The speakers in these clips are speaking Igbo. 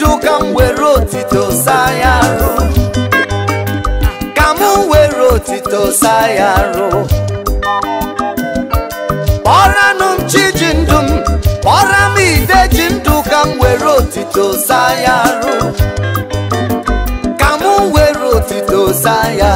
bido ka m were otito saa ya arụ ka m were otito saa ya arụ kpọranụ m chi ji ndụ m kpọra m ide ji ndụ ka m were otito saa ya arụ ka m were otito saa ya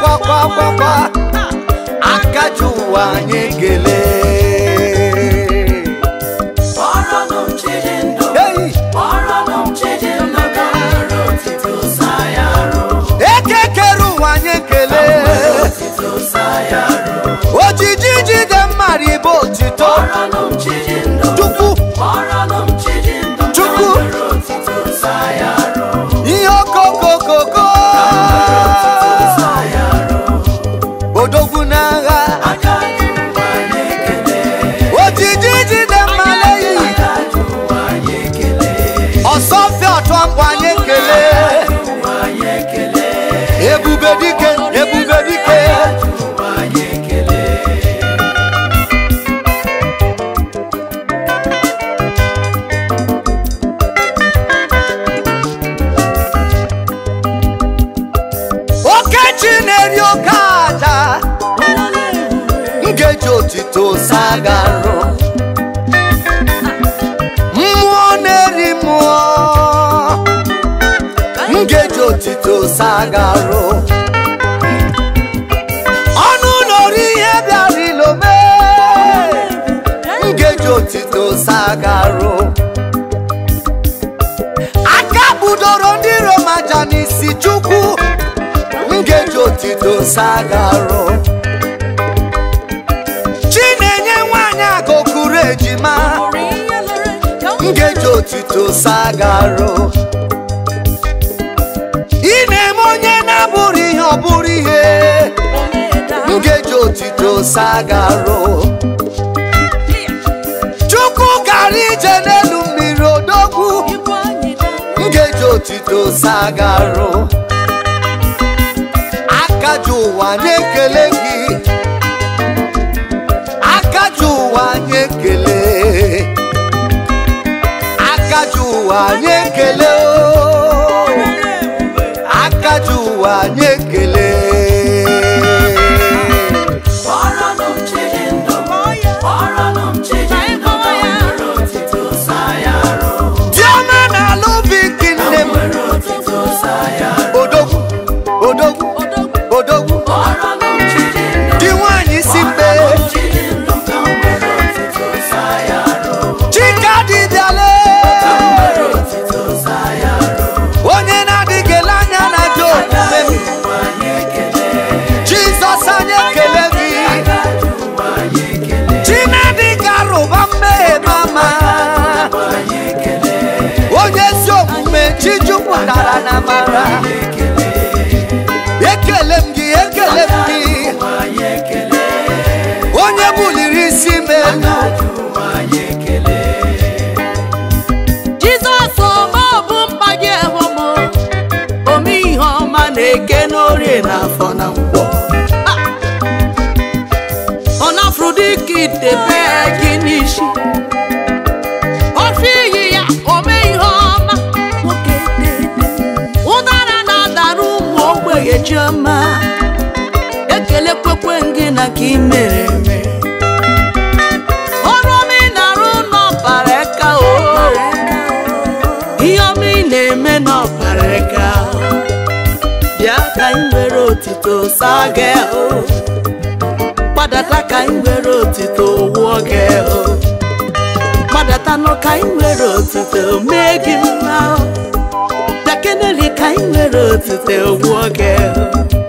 kwakwakwakwa aka ji ụwa anyị ekele ebube dike ebube dike okechi na-eri oke aja nkeji otito sagarụ mmụọ na-eri mmụọ nkeji otito sagarụ sagaro aka budoro ndị Roma ja n'isi Chukwu ngeji otito sagaro enye nwanyị akụkụrụ ejima ngeji otito sagaro ị na-eme onye na-abụrụ ihe ọ bụrụ ihe ngeji otito sagaro sagaru akaji ụwa anyị ekele gị akaji ụwa anyị ekele akaji ụwa anyị ekele akaji ụwa anyị ekele buliri isi m elu Jizọs ọma bụ ome ọma na-eke n'orie na ah! afọ na gị ofe iyi ya ome ihe ọma ụdara na-adara ụmụ ogbenye chioma ekele kwekwe gị na ime otito saa gị o gbadata ka anyị nwere otito wụọ gị o gbadata ka anyị nwere otito mee gị mma o ka anyị nwere otito wụọ gị o